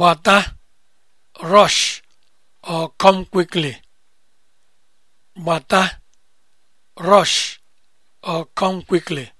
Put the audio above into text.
Bata, rush, or come quickly. Bata, rush, or come quickly.